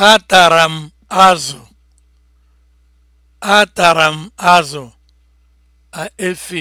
Atara tara azụ. m azụ. a